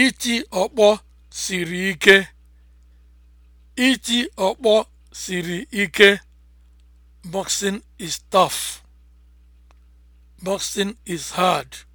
Iti ọkpọ siri ike. Iti ọkpọ siri ike. Boxing is tough. Boxing is hard.